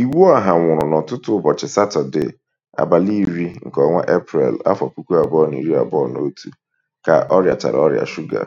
iwu ha nwụrụ n'ụtụtụ ụbọchị Satọdee, abalị iri nke ọnwa Eprel, afọ puku abụọ na iri abụọ na otu, ka rịachara ọrịa shuga.